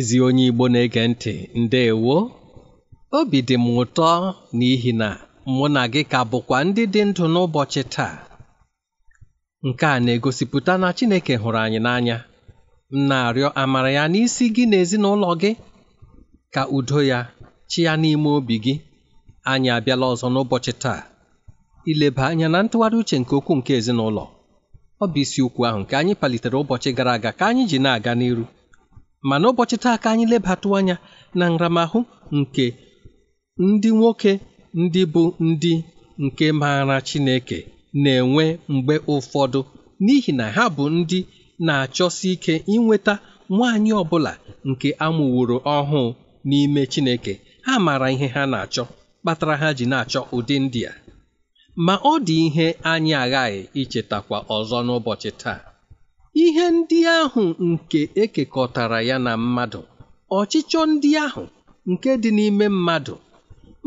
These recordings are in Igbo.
ezi onye Igbo na-ege ntị ndeewo obi dị m ụtọ n'ihi na mụ na gị ka bụkwa ndị dị ndụ n'ụbọchị taa nke a na-egosipụta na Chineke hụrụ anyị n'anya m na-arịọ amara ya n'isi gị na ezinụlọ gị ka udo ya chi ya n'ime obi gị anyị abịala ọzọ n'ụbọchị taa ileba anya na ntụgharị uche nke okwu nke ezinụlọ ọ bụ ukwu ahụ nke anyị palitere ụbọchị gara aga ka anyị ji na-aga n'iru ma n'ụbọchị taa ka anyị lebatụ anya na nramahụ nke ndị nwoke ndị bụ ndị nke maara Chineke na-enwe mgbe ụfọdụ n'ihi na ha bụ ndị na-achọsi ike inweta nwaanyị ọbụla nke amụworo ọhụụ n'ime Chineke ha maara ihe ha na-achọ kpatara ha ji na-achọ ụdị ndị a ma ọ dị ihe anyị aghaghị ichetakwa ọzọ n'ụbọchị taa ihe ndị ahụ nke ekekọtara ya na mmadụ ọchịchọ ndị ahụ nke dị n'ime mmadụ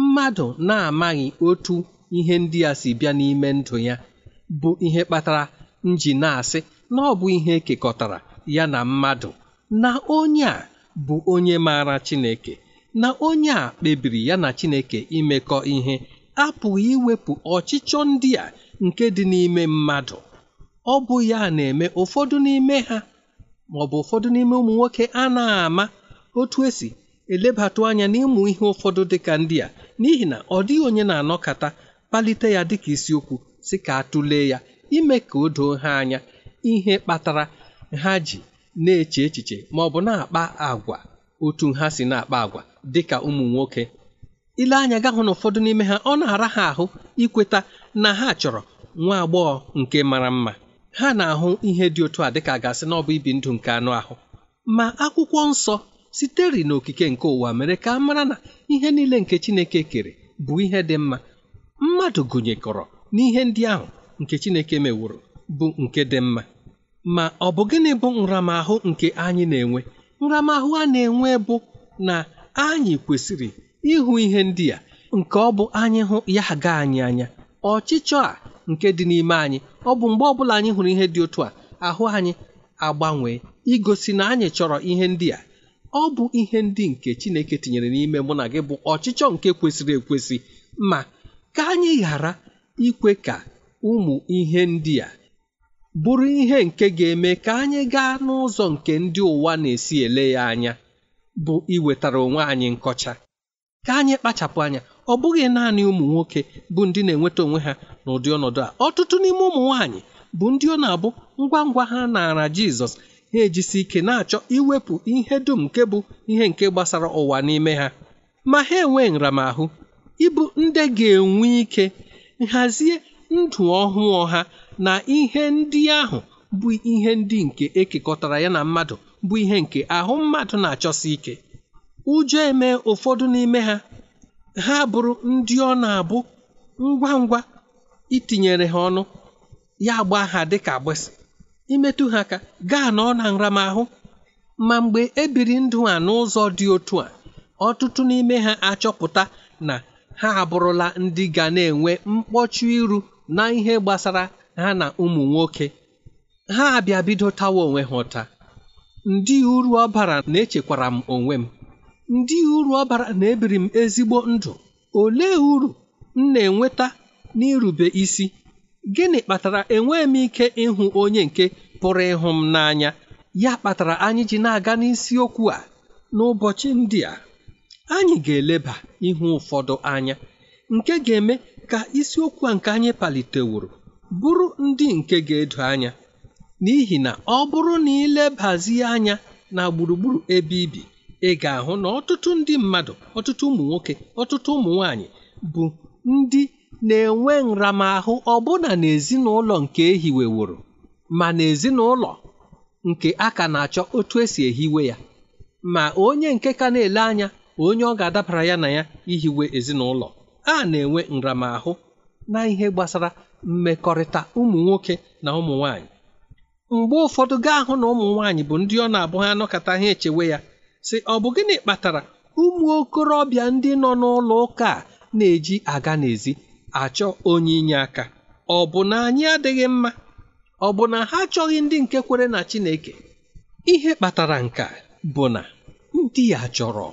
mmadụ na-amaghị otu ihe ndị a si bịa n'ime ndụ ya bụ ihe kpatara nji na-asị na ọ bụ ihe ekekọtara ya na mmadụ na onye a bụ onye maara Chineke na onye a kpebiri ya na Chineke imekọ ihe apụghị iwepụ ọchịchọ ndị a nke dị n'ime mmadụ ọ bụ ya na-eme ụfọdụ n'ime ha maọbụ ụfọdụ n'ime ụmụ nwoke a na-ama otu esi elebatụ anya n'ịmụ ihe ụfọdụ dịka ndị a n'ihi na ọ dịghị onye na-anọkata kpalite ya dịka isiokwu si ka atụlee ya ime ka o doo ha anya ihe kpatara ha ji na-eche echiche maọbụ na-akpa agwa otu ha si na-akpa agwa dịka ụmụ nwoke ile anya ga na ụfọdụ n'ime ha ọ na-ara ha ahụ ikweta na ha chọrọ nwa agbọghọ nke mara mma ha na-ahụ ihe dị otu a dịka gasị na ọ bụ ibi ndụ nke anụ ahụ ma akwụkwọ nsọ sitere n'okike nke ụwa mere ka a mara na ihe niile nke Chineke kere bụ ihe dị mma mmadụ gụnyekọrọ n'ihe ndị ahụ nke Chineke meworo bụ nke dị mma ma ọ bụ gịnị bụ nramahụ nke anyị na-enwe nramahụ a na-enwe bụ na anyị kwesịrị ịhụ ihe ndị a nke ọ bụ anyị hụ ya ga anyị anya ọchịchọ a nke dị n'ime anyị ọ bụ mgbe ọbụla anyị hụrụ ihe dị otu a ahụ anyị agbanwee igosi na anyị chọrọ ihe ndị a ọ bụ ihe ndị nke Chineke tinyere n'ime mụ na gị bụ ọchịchọ nke kwesịrị ekwesị ma ka anyị ghara ikwe ka ụmụ ihe ndị a bụrụ ihe nke ga-eme ka anyị gaa n'ụzọ nke ndị ụwa na-esi ele ya anya bụ iwetara onwe anyị nkọcha ka anyị kpachapụ anya ọ bụghị naanị ụmụ nwoke bụ ndị na-enweta onwe ha n'ụdị ọnọdụ a ọtụtụ n'ime ụmụ nwaanyị bụ ndị ọ na-abụ ngwa ngwa ha naara Jizọs ha ejisi ike na-achọ iwepụ ihe dum nke bụ ihe nke gbasara ụwa n'ime ha ma ha enwee nramahụ ịbụ ndị ga-enwe ike nhazie ndụ ọhụụ ha na ihe ndị ahụ bụ ihe ndị nke ekekọtara ya na mmadụ bụ ihe nke ahụ mmadụ na-achọsi ike ụjọ eme ụfọdụ n'ime ha ha bụrụ ndị ọ na-abụ ngwa ngwa itinyere ha ọnụ ya gbaa ha dịka agbịsị imetụ ha ka gaa na ọ na nramahụ ma mgbe e biri ndụ a n'ụzọ dị otu a ọtụtụ n'ime ha achọpụta na ha abụrụla ndị ga na-enwe mkpọchu iru na ihe gbasara ha na ụmụ nwoke ha abịa bido tawa onwe ha ụta ndị uru ọ bara na-echekwara m onwe m ndị uru ọ bara na ebiri m ezigbo ndụ ole uru m na-enweta n'irube isi gịnị kpatara enweghị m ike ịhụ onye nke pụrụ ịhụ m n'anya ya kpatara anyị ji na-aga n'isiokwu a n'ụbọchị ndị a anyị ga-eleba ihu ụfọdụ anya nke ga-eme ka isiokwu a nke anyị paliteworo bụrụ ndị nke ga-edo anya n'ihi na ọ bụrụ na ilebazie anya na gburugburu ebe ibi ị ga-ahụ na ọtụtụ ndị mmadụ ọtụtụ ụmụ nwoke ọtụtụ ụmụ nwanyị bụ ndị na-enwe nramahụ ọbụna n'ezinụlọ nke ehiweworo ma n'ezinụlọ nke a ka na-achọ otu esi ehiwe ya ma onye nke ka na-ele anya onye ọ ga-adabara ya na ya ihiwe ezinụlọ a na-enwe nramahụ na ihe gbasara mmekọrịta ụmụ nwoke na ụmụ nwaanyị mgbe ụfọdụ gaa hụ na ụmụ nwaanyị bụ ndị ọ na-abụ ha anọkọta ha echewe ya sị ọ bụ gịnị kpatara ụmụ okorobịa ndị nọ n'ụlọ ụka a na-eji aga n'ezi achọ onye inye aka ọ bụ na anyị adịghị mma ọ bụ na ha achọghị ndị nke kwere na Chineke ihe kpatara nka bụ na ndị ya chọrọ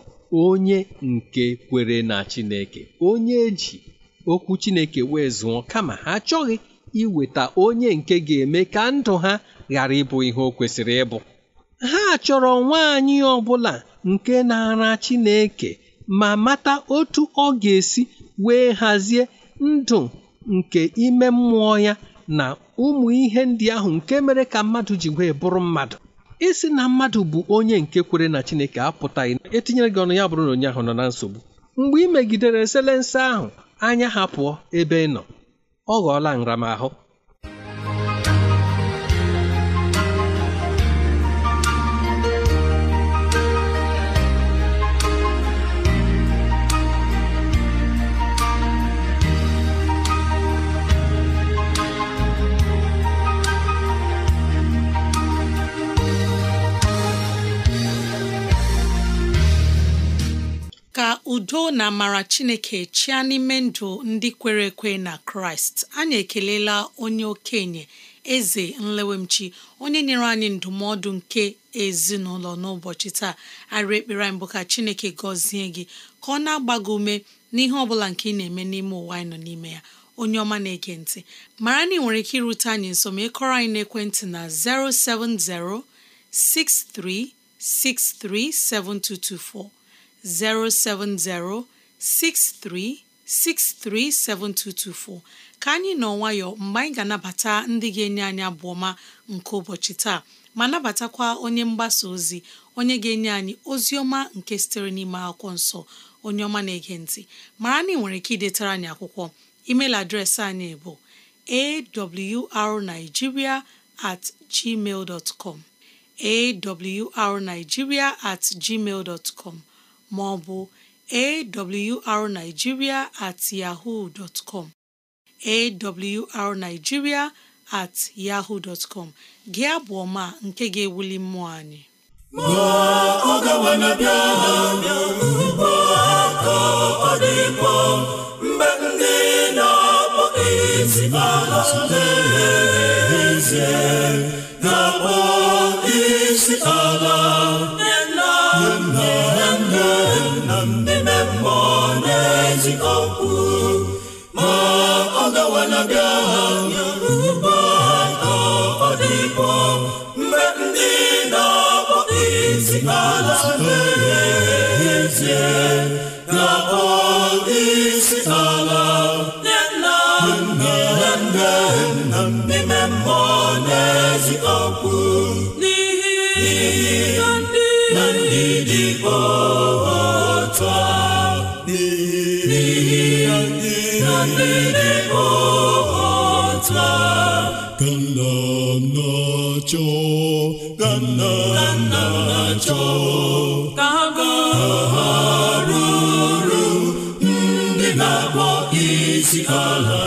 onye nke kwere na Chineke onye eji okwu Chineke wee zụọ kama ha achọghị iweta onye nke ga-eme ka ndụ ha ghara ịbụ ihe o kwesịrị ịbụ ha chọrọ nwaanyị ọbụla nke na-ara Chineke ma mata otu ọ ga-esi wee hazie ndụ nke ime mmụọ ya na ụmụ ihe ndị ahụ nke mere ka mmadụ ji wee bụrụ mmadụ isi na mmadụ bụ onye nke kwere na Chineke apụtaghị etinyere gị ọnụ ya bụrụ na onye ahụ nọ na nsogbu mgbe ị megidere eselense ahụ anya ha pụọ ebe ị nọ ọ ghọọla nramahụ udo na amara chineke chịa n'ime ndụ ndị kwere ekwe na kraịst anyị ekelela onye okenye eze nlewemchi onye nyere anyị ndụmọdụ nke ezinụlọ n'ụbọchị taa arị ekpere anyị ka chineke gọzie gị ka ọ na-agba gị ume n'ihe ọ bụla nke ị na-eme n'ime ụwa anyị nọ n'ime ya onye ọma na-ege ntị mara na ị nwere ike irute anyị nso ma ịkọrọ anyị n'ekwentị na 070 6363 7224 07063637224 ka anyị nọ nwayọ mgbe anyị ga-anabata ndị ga-enye anyị abụ ọma nke ụbọchị taa ma nabatakwa onye mgbasa ozi onye ga-enye anyị ozi ọma nke sitere n'ime akwụkwọ nsọ onye ọma na-ege ntị mara na ị nwere ike idetara anyị akwụkwọ email adreesị anyị bụ arigiria at gmail com awrnigeria at gmail com ma ọ bụ awrnigeria at yahoo dot com awrnigeria at yahoo dot com gị abụ ọma nke ga-ewuli mmụọ anyị ma ọ gawa na bịa ugbo ka ọ dịkwa mgbe ndị na-akpọ isi ala na akpọ isi ala wanabịa ahụ ka ọ dịbọ mgbe ndị na isi ala ka nna nna chọọ ka chọọ ha ruru ndị na-akpọ isi ala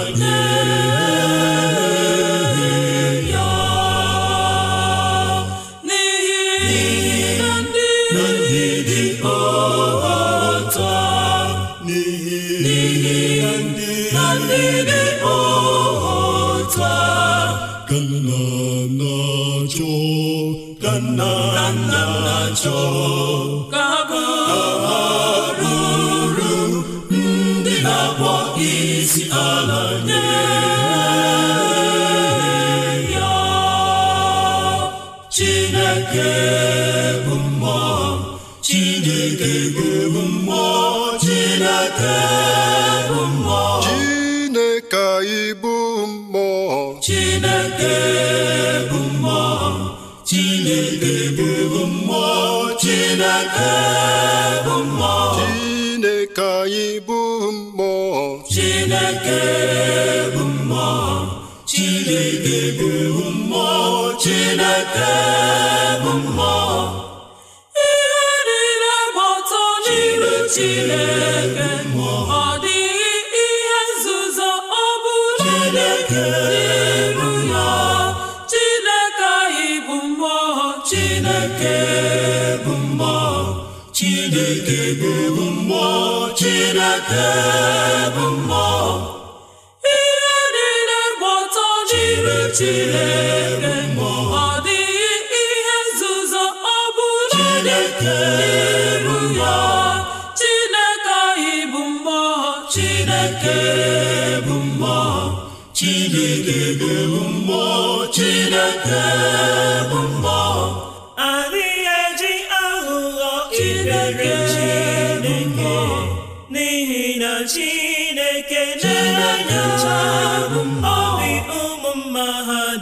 ka nna nna chọọ ka ha ruru ndị na-akpọ isi ala nye ya Chineke bụ mmụọ Chineke bụ mmụọ Chineke bụ mmụọ Chineke mmụọ Chineke chineke anyị bụ mmụọ chineke bụ mmụọ chineke bụ mmụọ chineke bụ mmụọ ihe niile gba ọtọ n'iru chineke ọ dịghị ihe nzuzo ọ bụla dị Chineke bụ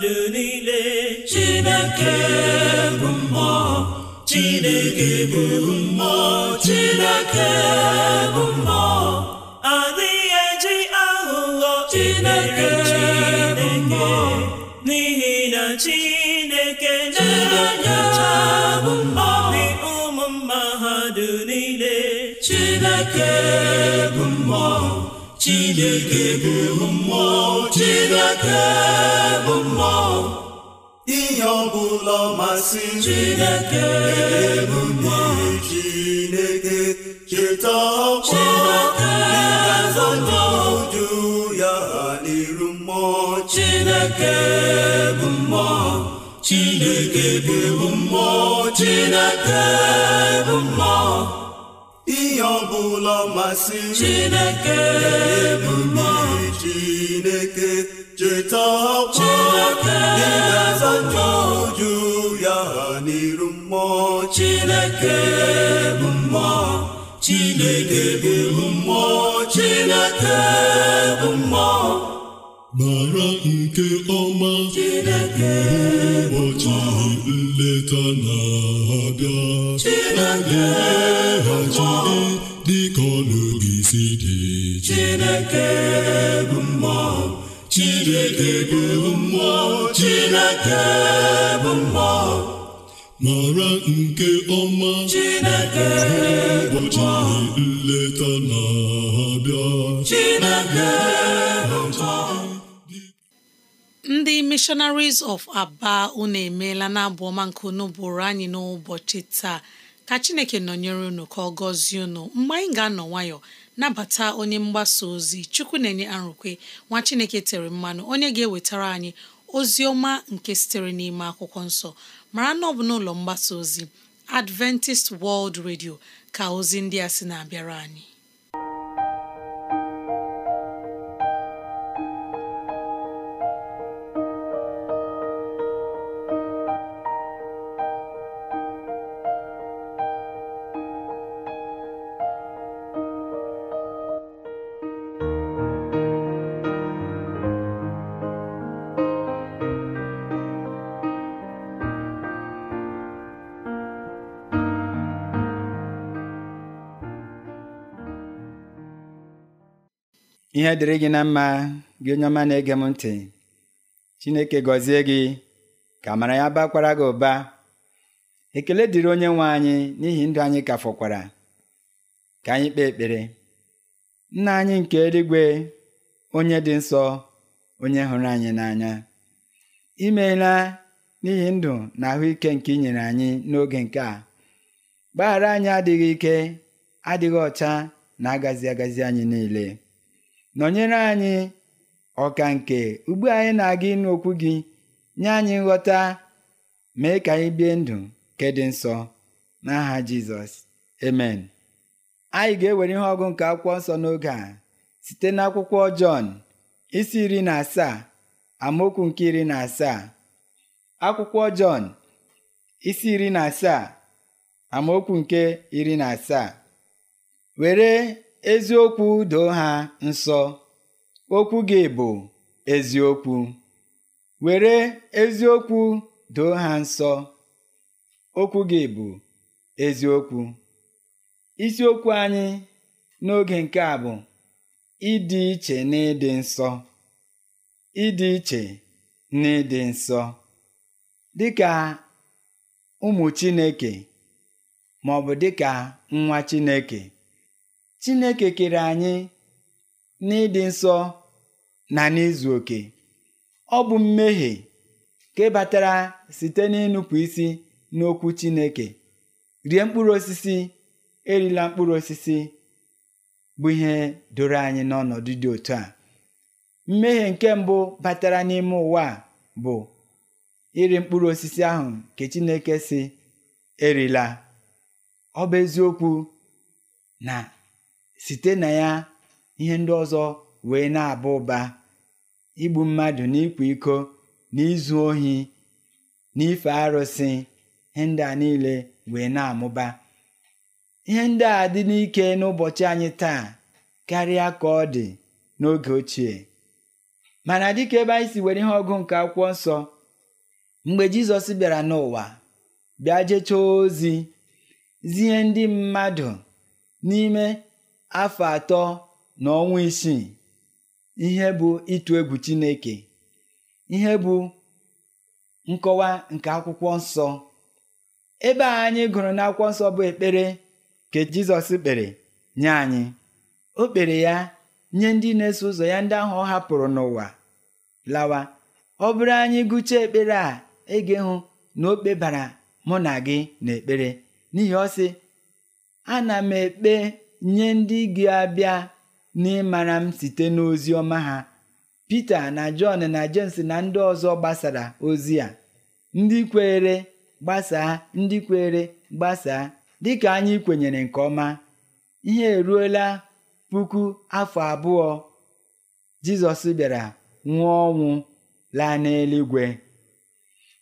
niile Chineke bụ mmụọ Chineke bụ mmụọ Chineke bụ mmụọ adịghị eji aghụghọ Chineke bụ mmụọ n'ihi na Chineke na-enyocha obi ụmụ mmadụ niile Chineke bụ mmụọ chineke bụ mmụọ chineke bụ mmụọ ihe ọbụla masị chineke bụ mmụọ chineke cheta ọkwa oju ya n'iru mmụọ chineke bụ mmụọ chineke bụ mmụọ chineke bụ mmụọ ihe ọbụla masịrị Chineke bụ Chineke cheta ọkwa ị ga-azọcha uju ya n'iru mmụọ Chineke bụ mmụọ Chineke bụ mmụọ Chineke bụ mmụọ mara nke ọma ụbọchị nleta na-abịa dịka ọnụgị si dị Chineke bụ mmụọ Chineke bụ mmụọ Chineke bụ mmụọ mara nke ọma Chineke ụbọchị nleta na-abịa Chineke ndị missionaries of Aba unu emeela na abụ ọma nke unu bụrụ anyị n'ụbọchị taa ka chineke nọnyere unu ka ọ gọzie unu mgbe anyị ga-anọ nwayọ nabata onye mgbasa ozi chukwu na-enye arụkwe nwa chineke tere mmanụ onye ga-ewetara anyị ozi ọma nke sitere n'ime akwụkwọ nsọ mara na ọ bụ n'ụlọ mgbasa ozi Adventist World Radio ka ozi ndị a sị na-abịara anyị ihe dịrị gị na mma gị onye ọma na-ege m ntị chineke gọzie gị ka mara ya bakwara gị ụba ekele dịrị onye nwe anyị n'ihi ndụ anyị ka fọkwara ka anyị kpee ekpere nna anyị nke eluigwe onye dị nsọ onye hụrụ anyị n'anya imela n'ihi ndụ na ahụike nke inyere anyị n'oge nke a gbaghara anyị adịghị ike adịghị ọcha na-agazi agazi anyị niile nọnyere anyị ọka nke ugbu anyị na-aga ịnụ okwu gị nye anyị nghọta mee ka anyị bie ndụ nke dị nsọ n'aha Jizọs amen anyị ga-ewere ihe ọgụ nke akwụkwọ nsọ n'oge a site n'akwụkwọ Jọn isi iri na asaa amaokwu nke iri na asaa akwụkwọ Jọn isi iri na asaa amaokwu nke iri na asaa were eziokwu doo ha nsọ okwu gị bụ eziokwu were eziokwu doo ha nsọ okwu gị bụ eziokwu isiokwu anyị n'oge nke a bụ ịdị iche na ịdị nsọ ịdị iche na nsọ dịka ụmụ Chineke ma ọ bụ dịka nwa Chineke Chineke kere anyị n'ịdị nsọ na n'izu oke ọ bụ mmehie ka batara site n'ịnụpụ isi n'okwu Chineke rie mkpụrụ osisi erila mkpụrụ osisi bụ ihe doro anyị n'ọnọdụ dị otu a mmehie nke mbụ batara n'ime ụwa bụ iri mkpụrụ osisi ahụ nke Chineke si erila ọ bụ eziokwu na site na ya ihe ndị ọzọ wee na-aba ụba igbu mmadụ na iko n'izu ohi n'ife arụsị ihe ndị a niile wee na-amụba ihe ndị a dị n'ike n'ụbọchị anyị taa karịa ka ọ dị n'oge ochie mana dịka ebe anyị si were ihe ọgụ nke akwụkwọ nsọ mgbe Jizọs bịara n'ụwa bịa jechaa ozi zie ndị mmadụ n'ime afọ atọ na ọnwa isii ihe bụ ịtụ egwu Chineke ihe bụ nkọwa nke akwụkwọ nsọ ebe a anyị gụrụ n'akwụkwọ nsọ bụ ekpere ke Jizọs kpere nye anyị o kpere ya nye ndị na-eso ụzọ ya ndị ahụ ọ hapụrụ n'ụwa lawa ọ bụrụ anyị gụchaa ekpere a ege hụ na o kpebara mụ na gị na ekpere n'ihi ọ sị ana m ekpe nye ndị gị abịa n'ịmara m site n'ozi ọma ha Pita na Jọn na Jems na ndị ọzọ gbasara ozi a ndị kweere gbasaa ndị kweere gbasaa dịka anyị kwenyere nke ọma ihe eruola puku afọ abụọ Jizọs bịara nwụọ ọnwụ laa n'eluigwe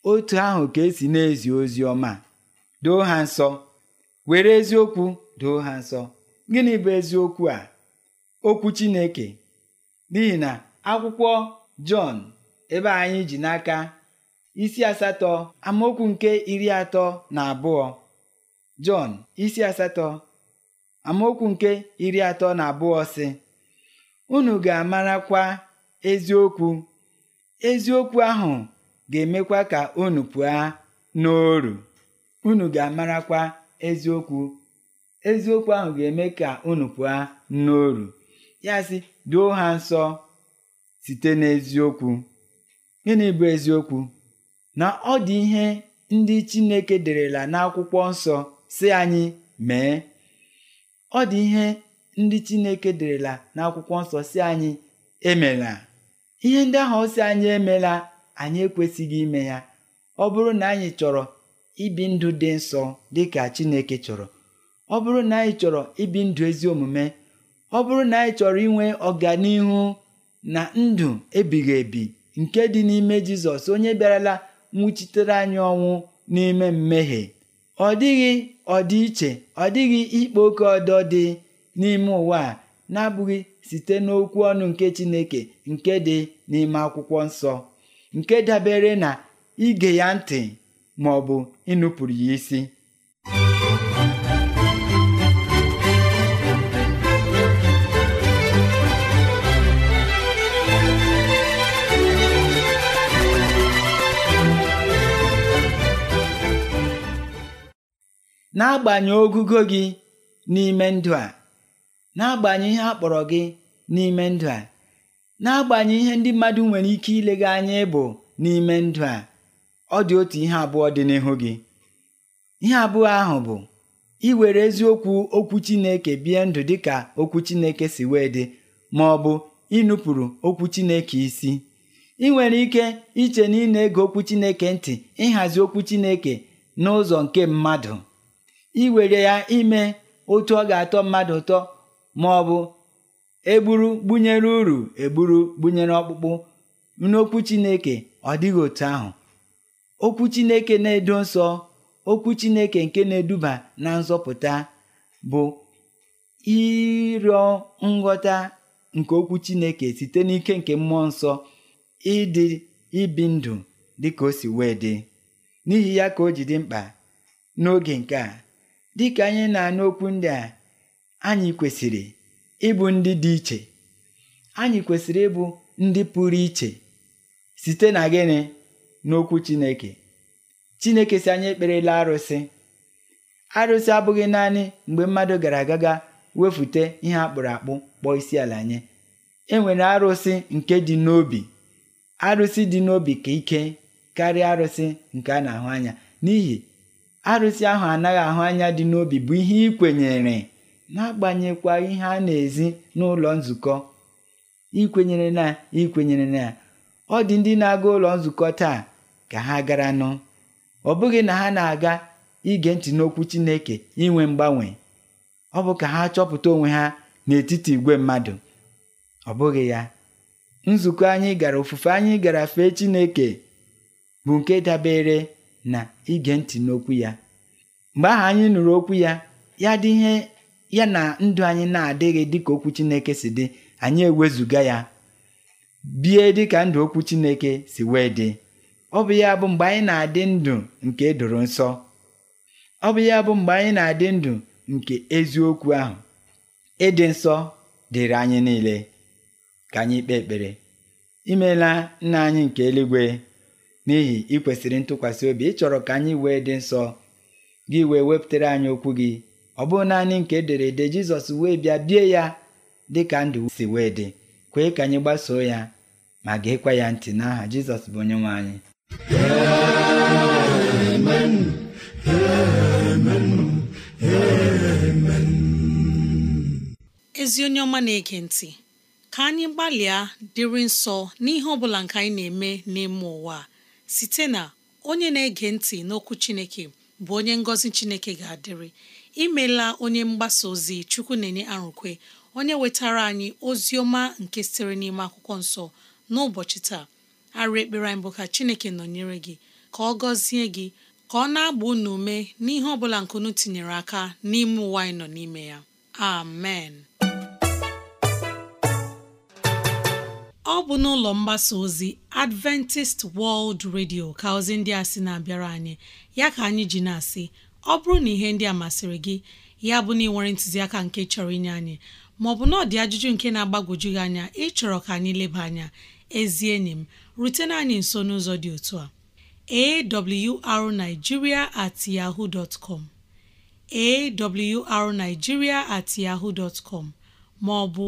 otu ahụ ka esi na-ezi ozi ọma doo ha nsọ were eziokwu doo ha nsọ gịnị bụ eziokwu a okwu Chineke n'ihi na akwụkwọ Jọn ebe anyị ji n'aka isi asatọ amaokwu nke iri atọ na abụọ Jọn isi asatọ amaokwu nke iri atọ na abụọ sị unu ga-amarakwa eziokwu eziokwu ahụ ga-emekwa ka unu pụọ n'oru unu ga-amarakwa eziokwu eziokwu ahụ ga-eme ka unu pụọ n'oru ya si duo ha nsọ site n'eziokwu gịnị bụ eziokwu na ọ dị ihe ndị Chineke derela n'akwụkwọ nsọ si anyị mee ọ dị ihe ndị Chineke derela n'akwụkwọ nsọ si anyị emela ihe ndị ahụ si anyị emela anyị ekwesịghị ime ya ọ bụrụ na anyị chọrọ ibi ndụ dị nsọ dị ka Chineke chọrọ ọ bụrụ na anyị chọrọ ibi ndụ ezi omume ọ bụrụ na anyị chọrọ inwe ọganihu na ndụ ebighị ebi nke dị n'ime jizọs onye bịarala nwụchitere anyị ọnwụ n'ime mmehie ọ dịghị ọdịiche ọ dịghị ikpa oke ọdọ dị n'ime ụwa a na-abụghị site n'okwu ọnụ nke chineke nke dị n'ime akwụkwọ nsọ nke dabere na ige ya ntị ma ọ bụ ịnụpụrụ ya isi n'agbanyeghị ogugo gị n'ime ndụ a agbanye ihe a kpọrọ gị n'ime ndụ a na-agbanye ihe ndị mmadụ nwere ike ilega anya ịbụ n'ime ndụ a ọ dị otu ihe abụọ dị n'ihu gị ihe abụọ ahụ bụ iwere eziokwu okwu Chineke bie ndụ dị ka okwu Chineke si wee dị ma ọ bụ ịnụpụrụ okwu Chineke isi ị nwere ike iche na ị na-ege okwu Chineke ntị ịhazi okwu Chineke n'ụzọ nke mmadụ iwere ya ime otu ọ ga-atọ mmadụ ụtọ ma ọ bụ egburu gbunyere uru egburu gbunyere ọkpụkpụ n'okwu Chineke ọ dịghị otu ahụ okwu Chineke na-edo nsọ okwu Chineke nke na-eduba na nzọpụta bụ ịrịọ nghọta nke okwu Chineke site n'ike nke mmụọ nsọ ịdị ibi ndụ dị o si wee dị n'ihi ya ka o ji dị mkpa n'oge nke a dịka anyị na-anụ okwu ndị a anyị kwesịrị ịbụ ndị dị iche anyị kwesịrị ịbụ ndị pụrụ iche site na gịnị n'okwu Chineke Chineke si anyị ekperela arụsị arụsị abụghị naanị mgbe mmadụ gara agaga wefute ihe akpụrụ akpụ kpọọ isi ala nye e arụsị nke dị n'obi arụsị dị n'obi ka ike karịa arụsị nke a na-ahụ anya n'ihi arụsị ahụ anaghị ahụ anya dị n'obi bụ ihe ị kwenyere agbanyekwa ihe a na-ezi n'ụlọ nzukọ ikwenyere na ikwenyere na ọ dị ndị na-aga ụlọ nzukọ taa ka ha gara nụ ọ bụghị na ha na-aga ige ntị n'okwu Chineke inwe mgbanwe ọ bụ ka ha chọpụta onwe ha n'etiti igwe mmadụ ọ bụghị ya nzukọ anyị gara ofufe anyị gara fee Chineke bụ nke dabere na ige ntị n'okwu ya mgbe ahụ anyị nụrụ okwu ya ya dị ihe ya na ndụ anyị na-adịghị dịka okwu Chineke si dị anyị ewezuga ya bie dịka ndụ okwu Chineke si wee dị ọ bụ ya bụ mgbe anyị na-adị ndụ nke doro nsọ ọ bụ ya bụ mgbe anyị na-adị ndụ nke eziokwu ahụ ịdị nsọ dịrị anyị niile ka anyị kpee ekpere imeela nna anyị nke eluigwe n'ihi ị kwesịrị ntụkwasị obi ịchọrọ ka anyị wee dị nsọ gị wee wepụtara anyị okwu gị ọ bụghị naanị nke ederede Jizọs wee bịa bie ya dị ka ndụ si wee dị kwee ka anyị gbasoo ya ma ga-ekwe ya ntị n'aha Jizọs bụ onye nwe anyị ezi onye ọma na-ege ntị ka anyị gbalịa dịrị nsọ n'ihe ọ bụla nke anyị na-eme n'ime ụwa a. site na onye na-ege ntị n'okwu Chineke bụ onye ngọzi Chineke ga-adịrị imela onye mgbasa ozi Chukwu na-enye arụkwe onye wetara anyị ozi ọma nke sitere n'ime akwụkwọ nsọ n'ụbọchị taa arụ ekpere anyị bụ ka Chineke nọnyere gị ka ọ gọzie gị ka ọ na-agba unu ume n'ihe ọ bụla nkunu tinyere aka n'ime ụwa anyị nọ n'ime ya amen ọ bụ n'ụlọ mgbasa ozi Adventist World Radio ka ozi ndị a sị na-abịara anyị ya ka anyị ji na-asị ọ bụrụ na ihe ndị a masịrị gị ya bụ na ị ntụziaka nke chọrọ inye anyị maọbụ na ọdị dị ajụjụ nke na-agbagwoju gị anya ịchọrọ ka anyị leba anya ezi enyi m rutena anyị nso n'ụzọ dị otu a arigiria at yahoo dot com at yaho dot maọbụ